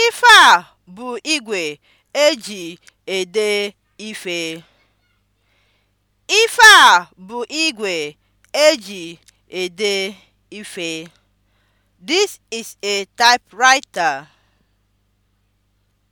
Ife a bụ igwe eji ede ife. Ife a bụ igwe eji ede ife. This is a typewriter.